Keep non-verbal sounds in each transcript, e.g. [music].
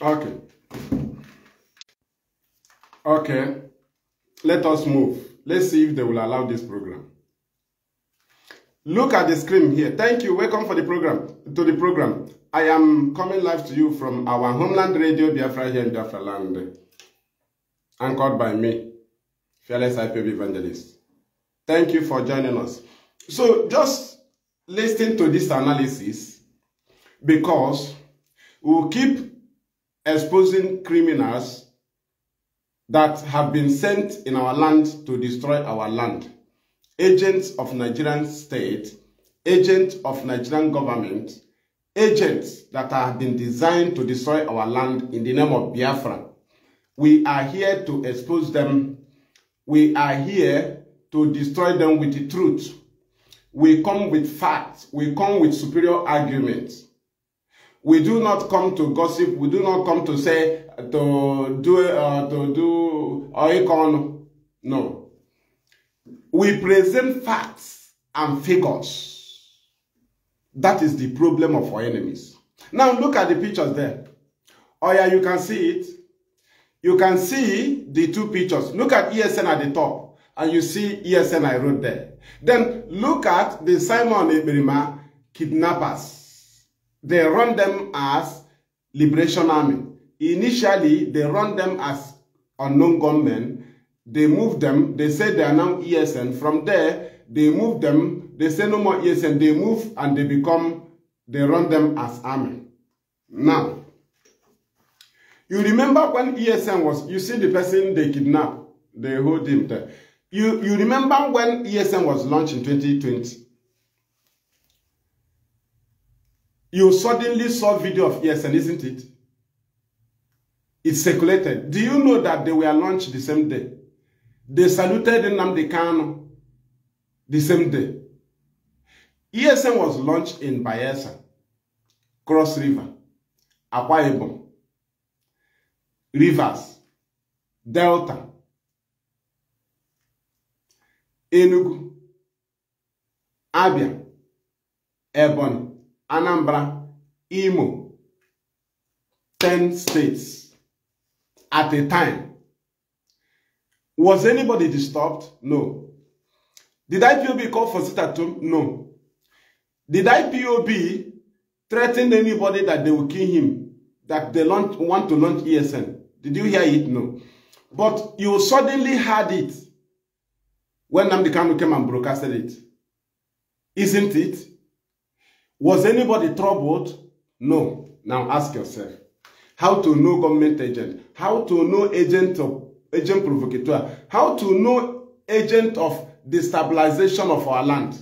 Okay. Okay. Let us move. Let's see if they will allow this program. Look at the screen here. Thank you. Welcome for the program to the program. I am coming live to you from our homeland radio Biafra here in Biafra land. Anchored by me, fearless IPB evangelist. Thank you for joining us. So just listen to this analysis because we'll keep exposing criminals that have been sent in our land to destroy our land. Agents of Nigerian state, agents of Nigerian government, agents that have been designed to destroy our land in the name of Biafra. We are here to expose them. We are here to destroy them with the truth. We come with facts. We come with superior arguments. We do not come to gossip. We do not come to say, to do, uh, to do oikon. No. We present facts and figures. That is the problem of our enemies. Now look at the pictures there. Oh yeah, you can see it. You can see the two pictures. Look at ESN at the top. And you see ESN I wrote there. Then look at the Simon Eberima kidnappers. They run them as Liberation Army. Initially, they run them as unknown gunmen. They move them. They say they are now ESN. From there, they move them. They say no more ESN. They move and they become, they run them as army. Now, you remember when ESN was, you see the person they kidnap, they hold him there. You, you remember when ESN was launched in 2020? you suddenly saw video of ESN, isn't it? It circulated. Do you know that they were launched the same day? They saluted Nnamdi Kano the same day. ESN was launched in Bayelsa, Cross River, Akwa Ibom, Rivers, Delta, Enugu, Abia, Ebony. Anambra, Imo, 10 states at a time. Was anybody disturbed? No. Did IPOB call for sit at No. Did IPOB threaten anybody that they will kill him, that they launch, want to launch ESN? Did you hear it? No. But you suddenly heard it when Namdi Kanu came and broadcasted it. Isn't it? Was anybody troubled? No. Now ask yourself. How to know government agent? How to know agent of agent provocateur? How to know agent of destabilization of our land?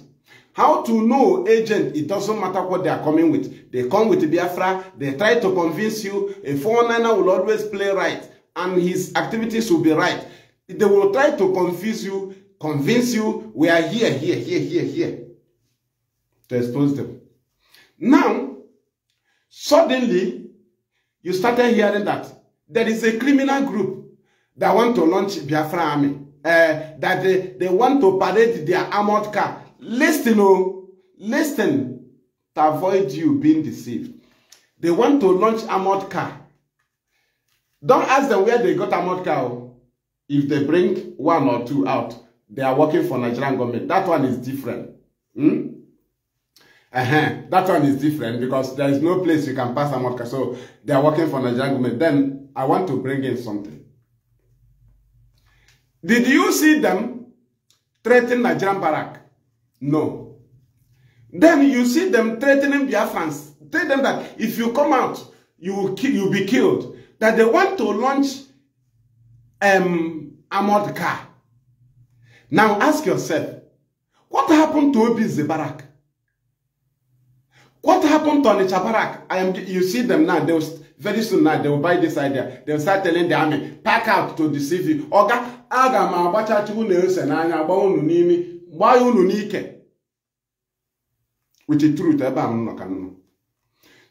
How to know agent, it doesn't matter what they are coming with. They come with Biafra, they try to convince you a foreigner will always play right and his activities will be right. They will try to confuse you, convince you, we are here, here, here, here, here, to expose them. Now, suddenly, you started hearing that there is a criminal group that want to launch Biafra army, uh, that they, they want to parade their armored car. Listen, oh, listen to avoid you being deceived. They want to launch armored car. Don't ask them where they got armored car. Oh, If they bring one or two out, they are working for Nigerian government. That one is different. Hmm? Uh -huh. That one is different because there is no place you can pass a Amorka. So they are working for Nigerian government. Then I want to bring in something. Did you see them threatening Nigerian barrack? No. Then you see them threatening Biafrans. Tell them that if you come out, you will kill, you'll be killed. That they want to launch um, car. Now ask yourself, what happened to Obi Zebarak? What happened to Anicha Barak? I am, you see them now, they will, very soon now, they will buy this idea. They will start telling the army, pack out to deceive you. Oga, aga ma agbachachi unu na-anya gba unu n'ime gba unu n'ike. With the truth, ebe am nọ ka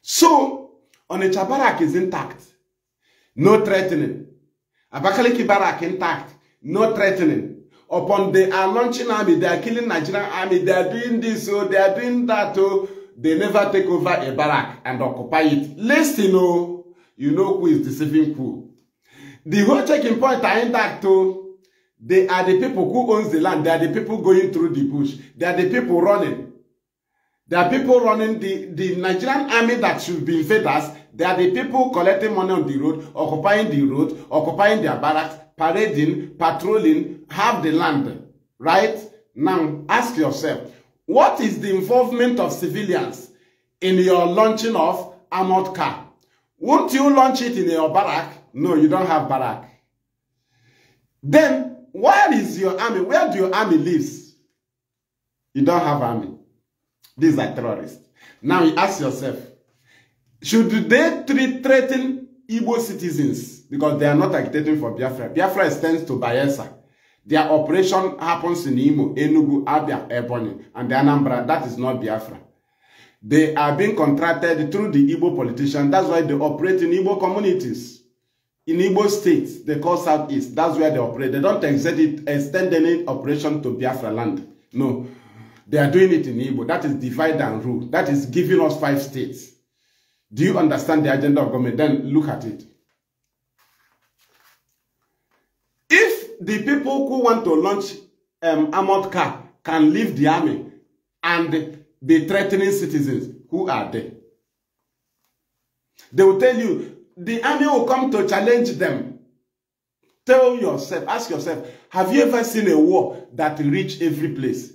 So, Onitsha Barak is intact. No threatening. Abakaliki Barak intact. No threatening. Upon they are uh, launching army, they are killing Nigerian army, they are doing this, oh, they are doing that, oh. They never take over a barrack and occupy it. Listen, oh, you know who is deceiving who. The whole checking point are intact, oh. They are the people who owns the land. They are the people going through the bush. They are the people running. There are people running the, the Nigerian army that should be fed us. They are the people collecting money on the road, occupying the road, occupying their barracks, parading, patrolling, have the land. Right? Now, ask yourself, What is the involvement of civilians in your launching of armored car? Won't you launch it in your barrack? No, you don't have barrack. Then, where is your army? Where do your army lives? You don't have army. These are terrorists. Now you ask yourself, should they treat, threaten Igbo citizens? Because they are not agitating for Biafra. Biafra extends to Bayelsa. Their operation happens in Imo, Enugu, Abia, Ebonyi, and their Anambra. That is not Biafra. They are being contracted through the Igbo politician. That's why they operate in Igbo communities. In Igbo states, they call Southeast. That's where they operate. They don't extend, it, extend any operation to Biafra land. No. They are doing it in Igbo. That is divide and rule. That is giving us five states. Do you understand the agenda of government? Then look at it. the people who want to launch um, armored car can leave the army and be threatening citizens. Who are there. They will tell you, the army will come to challenge them. Tell yourself, ask yourself, have you ever seen a war that reach every place?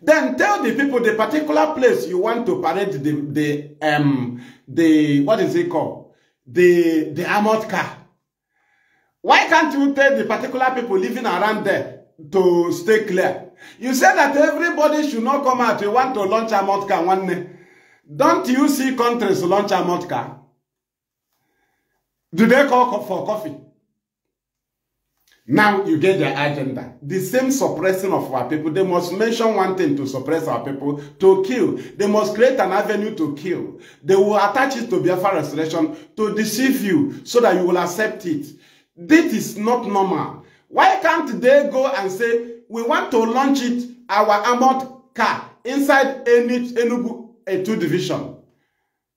Then tell the people the particular place you want to parade the, the, um, the what is it called? The, the armored car. Why can't you tell the particular people living around there to stay clear? You say that everybody should not come out. You want to launch a motka one day. Don't you see countries launch a motka? Do they call for coffee? Now you get their agenda. The same suppressing of our people. They must mention one thing to suppress our people, to kill. They must create an avenue to kill. They will attach it to Biafra restoration to deceive you so that you will accept it. This is not normal. Why can't they go and say, we want to launch it, our armored car, inside any Enugu A2 division?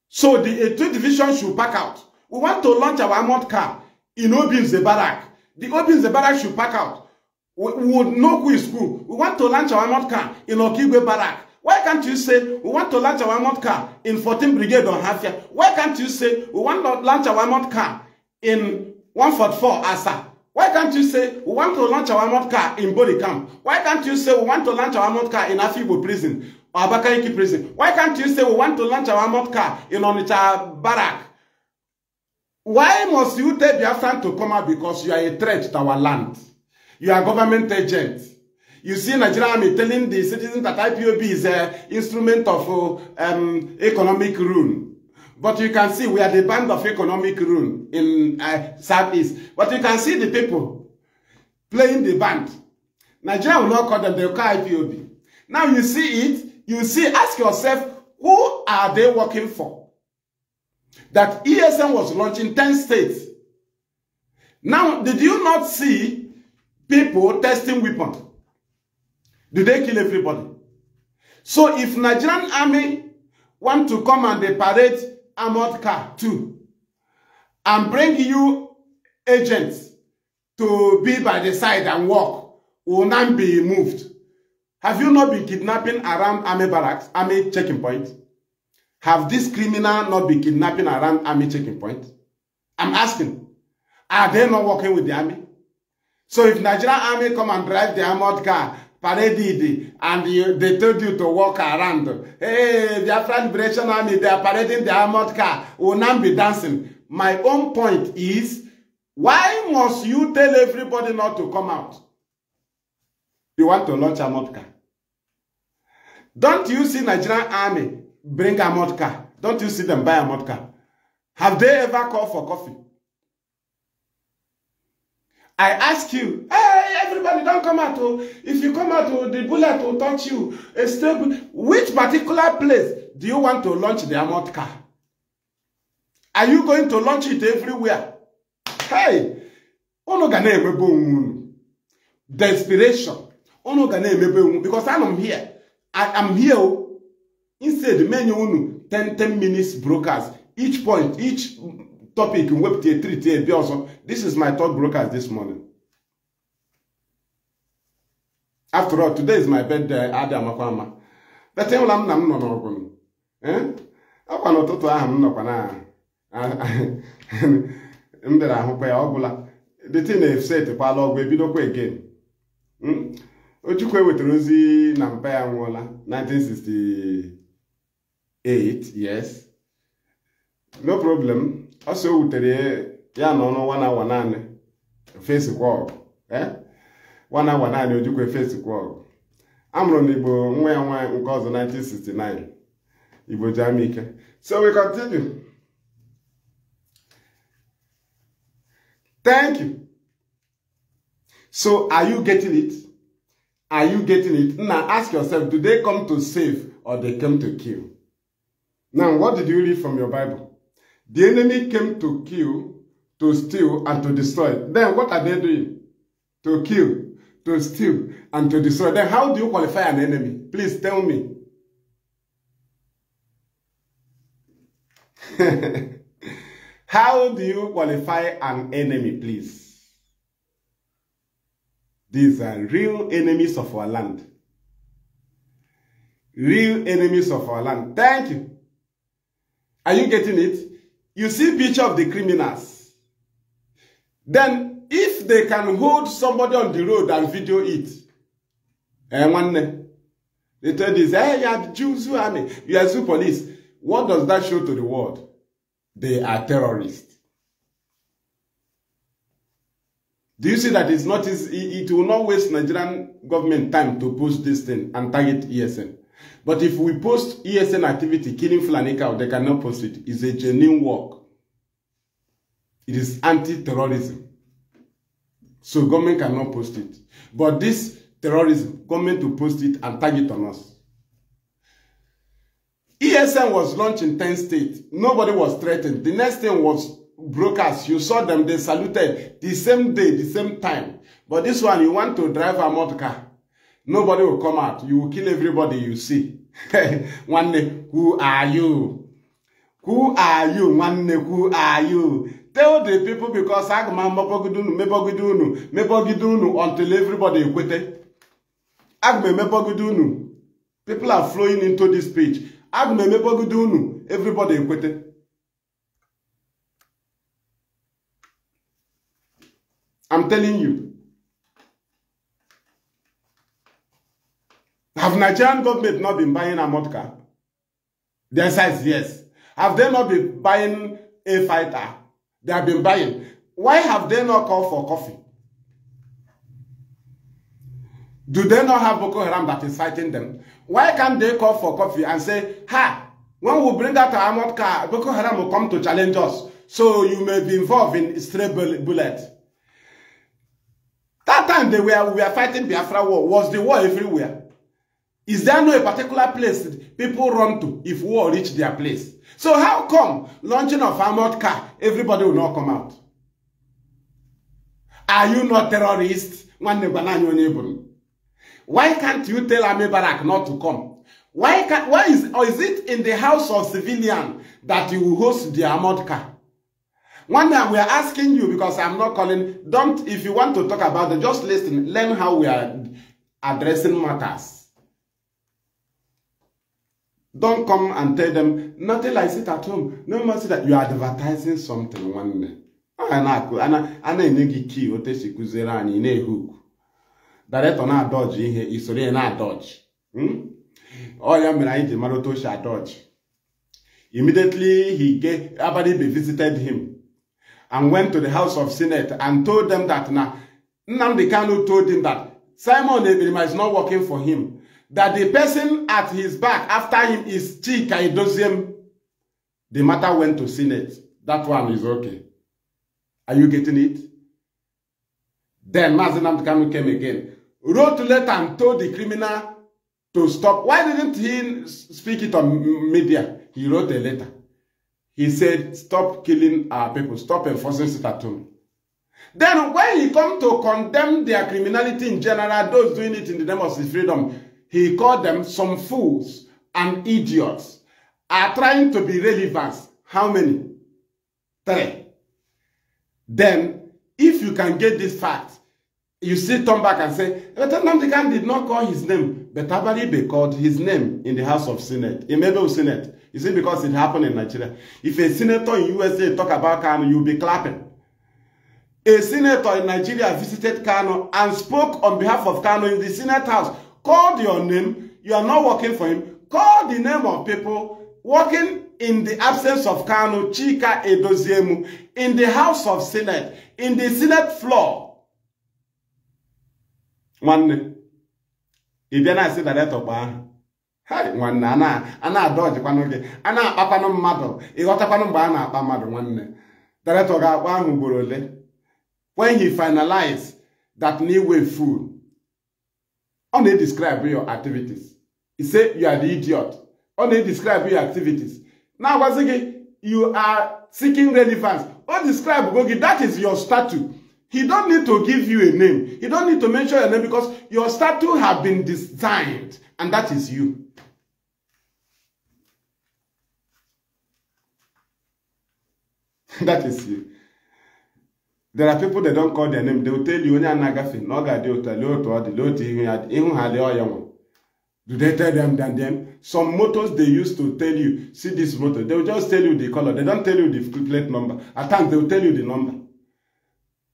So the A2 division should pack out. We want to launch our armored car in Obinze Zebarak. The Obinze Zebarak should pack out. We, would know who is who. We want to launch our armored car in Okigwe barrack. Why can't you say we want to launch our armored car in 14 Brigade on Hafia? Why can't you say we want to launch our armored car in 144 ASA. Why can't you say we want to launch our mob car in Boni camp? Why can't you say we want to launch our mob car in Afibo prison or Abakaliki prison? Why can't you say we want to launch our mob car in Onitsha barrack? Why must you tell Biafran to come out because you are a threat to our land? You are government agent. You see Nigeria army telling the citizens that IPOB is a instrument of uh, um, economic ruin. But you can see we are the band of economic ruin in uh, Southeast. But you can see the people playing the band. Nigeria will not call them, the call IPOB. Now you see it, you see, ask yourself, who are they working for? That ESM was launched in 10 states. Now, did you not see people testing weapons? Did they kill everybody? So if Nigerian army want to come and they parade armored car too and bring you agents to be by the side and walk. will not be moved. Have you not been kidnapping around army barracks, army checking point? Have this criminal not been kidnapping around army checking point? I'm asking, are they not working with the army? So if Nigerian army come and drive the armored car paraded and you, they told you to walk around. Hey, their friend Liberation Army, they are parading their armored car. Will not be dancing. My own point is, why must you tell everybody not to come out? You want to launch a armored car. Don't you see Nigerian army bring a armored car? Don't you see them buy a armored car? Have they ever called for coffee? I ask you, hey, everybody don't come out o if you come out o the bullet will touch you a stable which particular place do you want to launch the armored car are you going to launch it everywhere hey unu ga na-emebe onwe desperation unu ga na-emebe onwe because anọ m here I am here oh. instead many unu 10 10 minutes brokers each point each topic wepụta treat ebe ọzọ this is my third brokers this morning after all today is my birthday adị amakwa ama bete ụla m na m nọ n'ọgụ eh? ọkwa n'ụtụtụ ahụ m nọkwa na [laughs] m bịara ahụkwa ya ọbụla dịtị na esetịkwala ọgwụ ebidokwa again hmm? ochukwu ewetara ozi na mpa ya nwụọla 1968 yes no problem ọsọ o wutere ya na ọnụ nwa na awa naanị fesikwa ọgụ eh? nwana nwa naanị Ojukwu Efesikwu ọgụ amụrụ na Igbo nwa ya nwaanyị nke ọzọ 1969 Igbo ji ama so we continue thank you so are you getting it are you getting it now ask yourself do they come to save or they come to kill now what did you read from your Bible the enemy came to kill to steal and to destroy then what are they doing to kill to steal, and to destroy. Then how do you qualify an enemy? Please tell me. [laughs] how do you qualify an enemy, please? These are real enemies of our land. Real enemies of our land. Thank you. Are you getting it? You see picture of the criminals. Then if they can hold somebody on the road and video it, eh, and one, they tell this, eh, hey, you are Jews, you are, you are zoo police. What does that show to the world? They are terrorists. Do you see that it's not, it's, it will not waste Nigerian government time to post this thing and target ESN. But if we post ESN activity, killing Fulani they cannot post it. It's a genuine work. It is anti-terrorism. So government cannot post it. But this terrorism, government to post it and tag it on us. ESN was launched in 10 states. Nobody was threatened. The next thing was brokers. You saw them, they saluted the same day, the same time. But this one, you want to drive a motor car. Nobody will come out. You will kill everybody you see. [laughs] one day, who are you? Who are you? One day, who are you? tell the people because aga m amabọgide unu mebọgide unu unu until everybody ekwete aga m emebọgide unu people are flowing into this speech aga m emebọgide unu everybody ekwete I'm telling you Have Nigerian government not been buying a mud car? The answer is yes. Have they not been buying a fighter? They have been buying. Why have they not called for coffee? Do they not have Boko Haram that is fighting them? Why can't they call for coffee and say, Ha, when we bring out our armored car, Boko Haram will come to challenge us. So you may be involved in stray bullet. That time they were, we were fighting Biafra war. Was the war everywhere? Is there no a particular place people run to if war reach their place? So how come launching of armored car, everybody will not come out? Are you not terrorists? Why can't you tell Army Barak not to come? Why can why is or is it in the house of civilian that you host the armored car? One day we are asking you because I'm not calling. Don't if you want to talk about it, just listen, learn how we are addressing matters. Don't come and tell them, nothing like sit at home. No more sit that you are advertising something one day. ana enye gị kii ote si kụziere anyị na-ehuku daretọ na-adọji ihe isoro na dodge. Hmm? ya mere anyị ji mara otu o si immediately he get abadibe visited him and went to the house of senate and told them that na Nnamdi Kanu told him that Simon Ebirima is not working for him that the person at his back after him is Chika Idosiem, the matter went to Senate. That one is okay. Are you getting it? Then Mazinam Kanu came again, wrote a letter and told the criminal to stop. Why didn't he speak it on media? He wrote a letter. He said, stop killing our people. Stop enforcing Sitatum. Then when he come to condemn their criminality in general, those doing it in the name of freedom, He called them some fools and idiots are trying to be relevant. How many? Three. Then, if you can get this fact, you see, turn back and say, Nnamdi Khan did not call his name, but Abaribe called his name in the House of Senate, in Mabel Senate. You see, because it happened in Nigeria. If a senator in USA talk about Kano, you'll be clapping. A senator in Nigeria visited Kano and spoke on behalf of Kano in the Senate House. Call your name. You are not working for him. Call the name of people working in the absence of Kano, Chika Edoziemu, in the house of Senate, in the Senate floor. One Nwanne, ị bịa na-asị daretọ gba ahụ. I a na-adọjikwanụ gị, I na-akpakwanụ mmadụ, ịghọtakwanụ mgbe a na-akpa mmadụ nwanne. Daretọ ga-akpa ahụ ugboro ole. When he finalized that new way food, ọ na-edescribe your activities ise you are the idiot ọ na-edescribe your activities na-agwazi gị you are seeking relevance ọ describe go gị that is your statue he don't need to give you a name he don't need to mention your name because your statue have been designed and that is you [laughs] that is you there are people they don't call their name they will tell you onye a na-agafe na ọ ga-adị ụtọ lee otu ọ dị lee otu ihu ya ịhụ ha lee ọya nwa do they tell them than them some motors they used to tell you see this motor they will just tell you the color they don't tell you the plate number at times they will tell you the number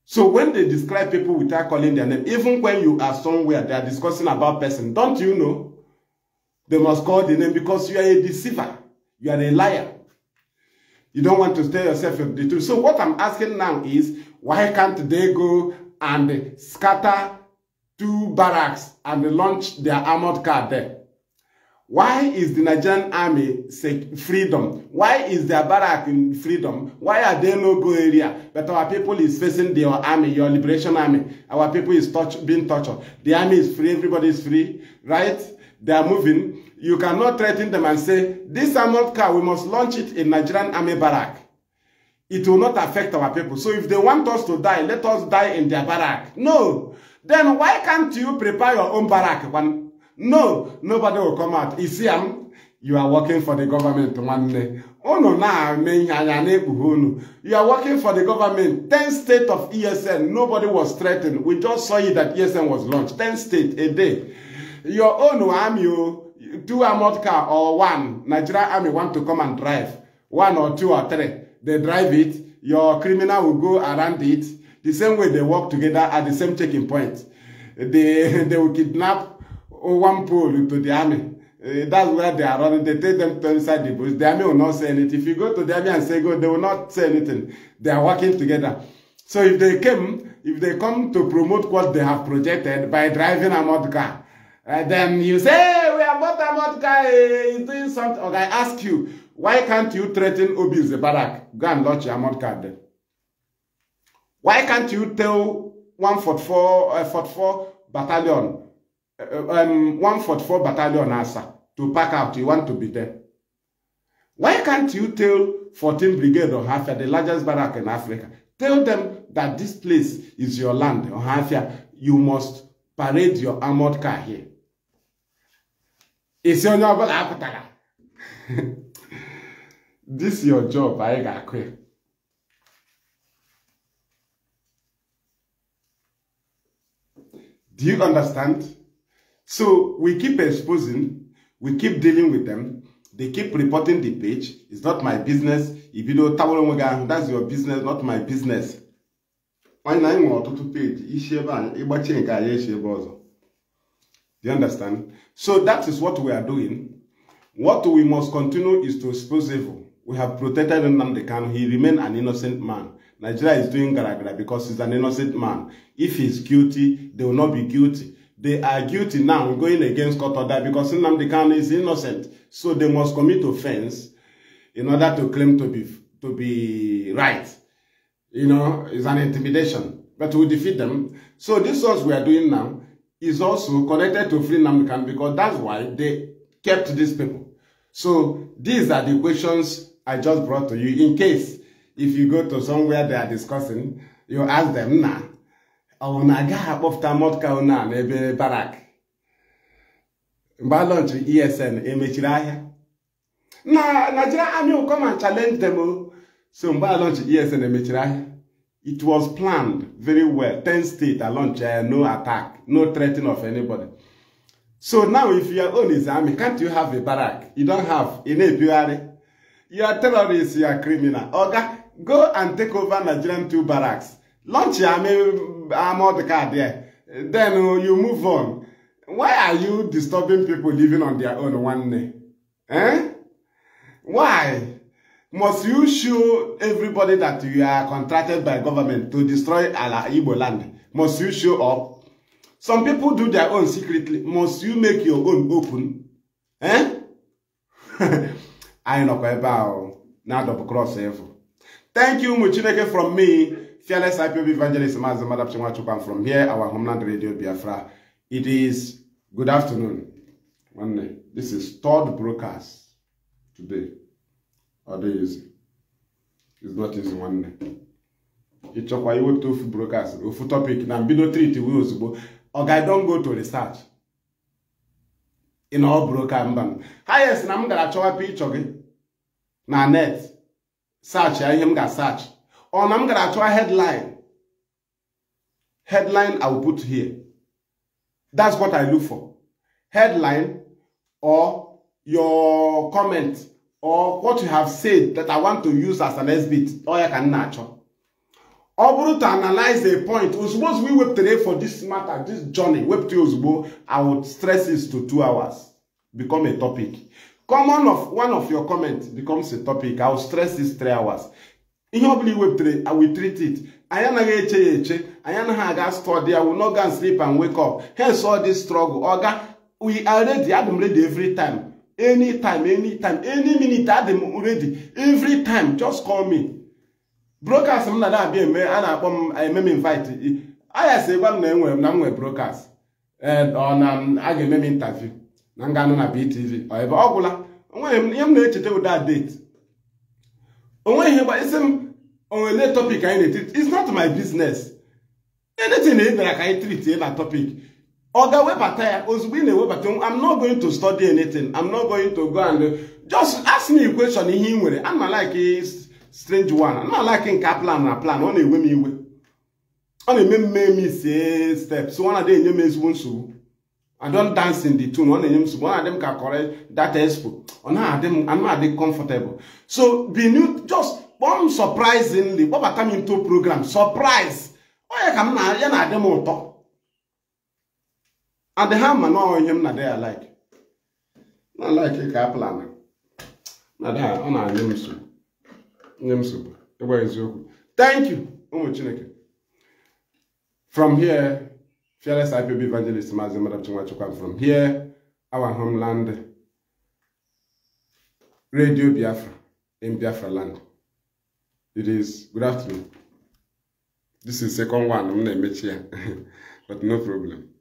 so when they describe people without calling their name even when you are somewhere they are discussing about person don't you know they must call the name because you are a deceiver you are a liar you don't want to tell yourself the truth so what i'm asking now is Why can't they go and scatter two barracks and launch their armored car there? Why is the Nigerian army freedom? Why is their barrack in freedom? Why are there no go area? But our people is facing your army, your liberation army. Our people is touch, being tortured. The army is free, everybody is free, right? They are moving. You cannot threaten them and say, this armored car, we must launch it in Nigerian army barrack it will not affect our people. So if they want us to die, let us die in their barrack. No. Then why can't you prepare your own barrack? When, no, nobody will come out. Isiam, um, you are working for the government one day. Unu na unu. You are working for the government. 10 state of ESN, nobody was threatened. We just saw you that ESN was launched. 10 state a day. Your own army, oh, two armored car or one, Nigeria army want to come and drive. One or two or three they drive it, your criminal will go around it. The same way they work together at the same checking point. They, [laughs] they will kidnap one pole to the army. Uh, that's where they are running. They take them to inside the bush. The army will not say anything. If you go to the army and say go, they will not say anything. They are working together. So if they came, if they come to promote what they have projected by driving a mod car, uh, then you say, hey, we are both a mod car, uh, doing something. Okay, I ask you, Why can't you threaten Obi's barrack? Go and launch your amount card then. Why can't you tell 144, uh, battalion, uh, um, 144 battalion ASA to pack out? You want to be there. Why can't you tell 14 Brigade of Hafia, the largest barrack in Africa, tell them that this place is your land, or Hafia, you must parade your armored car here. Isi onye ọbụla apụtara. [laughs] this your job anyị ga-akụ ya do you understand so we keep exposing we keep dealing with them they keep reporting the page it's not my business ibido tawara onwe gị ahụ that's your business not my business anyị na anyị nwere ọtụtụ peji isi ebe a ịgbachie nke anyị echi ebe ọzọ do you understand so that is what we are doing what we must continue is to expose evil We have protected Nnamdi Kanu. He remained an innocent man. Nigeria is doing garagara because he's an innocent man. If he's guilty, they will not be guilty. They are guilty now going against court order because Nnamdi Kanu is innocent. So they must commit offense in order to claim to be to be right. You know, it's an intimidation. But we defeat them. So this what we are doing now is also connected to free Nnamdi Kanu because that's why they kept these people. So these are the questions I just brought to you in case if you go to somewhere they are discussing, you ask them na ọ naga after akpọpụta mọtka na n'ebe barak mgbe alọnchiri esn emechiri ahịa na Nigeria Army will come and challenge them o so mgbe alọnchiri esn emechiri ahịa it was planned very well ten states launch eh, no attack no threatening of anybody so now if your own is army can't you have a barak you don't have ị You are terrorists, you are criminal. Oga, go and take over Nigerian two barracks. Launch your army, I'm the car there. Then uh, you move on. Why are you disturbing people living on their own one day? Eh? Why? Must you show everybody that you are contracted by government to destroy our Igbo land? Must you show up? Some people do their own secretly. Must you make your own open? Eh? [laughs] anyị nọkwa ebe ahụ na-adọpụ krọs thank you ụmụ chineke from me fearless ipob evangelist maazị madapchi nwachukwu am from here our homeland radio biafra it is good afternoon nwanne this is third brokers today ọ is. easy it's not easy nwanne ịchọkwa iwepụta ofu broadcast ofu topic na mbido treat wee ozugbo oga i don go to research ị na ọ bụrụ ka mba hayes na m gara chọwa pikchọ gị na net search ya ihe m ga-asach ọ na m gara achọwa headline headline I will put here that's what I look for headline or your comment or what you have said that I want to use as an exhibit ọ ya ka m na-achọ ọ bụrụ to analyze the point ozugbo ozugbo iwepụtara for this matter this journey wepụta ozugbo i would stress it to two hours become a topic common of one of your comments becomes a topic i will stress this three hours ihe ọbụla iwepụtara i will treat it anyị anaghị eche ya eche anyị anaghị aga study i will not go and sleep and wake up hence all this struggle oga we are ready adị m ready every time Any time, any minute adị m ready every time just call me broadcast m na na-abịa eme a na-akpọ m eme m invite ayasị si gwa m na enwe na m nwee broadcast ọ na a ga-eme m interview na nga anụ na BTV ebe ọ gwụla ihe m na-echeta ụda date onwe ihe gba isi m onwele topic anyị na-etiti it's not my business anything ị bịara ka anyị treat ịla topic ọ ga-ewebata ya ozugbo ị na-ewebata I'm not going to study anything I'm not going to go and just ask me question ihe ị nwere I'm not like strange one na-alaki ka plan na plan ọ na-ewe m iwe ọ na-eme mme m ise steps ọ na-adị enye m ezigbo nsogbu I don dance in the tune ọ na-enye m nsogbu ọ na-adị m ka kọrọ dat expo ọ na-adị m comfortable so be new just kpọm surprisingly kpọbata m into program surprise onye ka m na ya na-adị m ụtọ and ha ma na ihe m na-adị ya like na like ka plan na ọ na-adị m nsogbu nye m nsogbu ịgwa eziokwu thank you ụmụ chineke from here fearless ipob evangelist maazị madam nwachukwu from here our homeland radio biafra in biafra land it is good afternoon this is second one m na-emechi ya [laughs] but no problem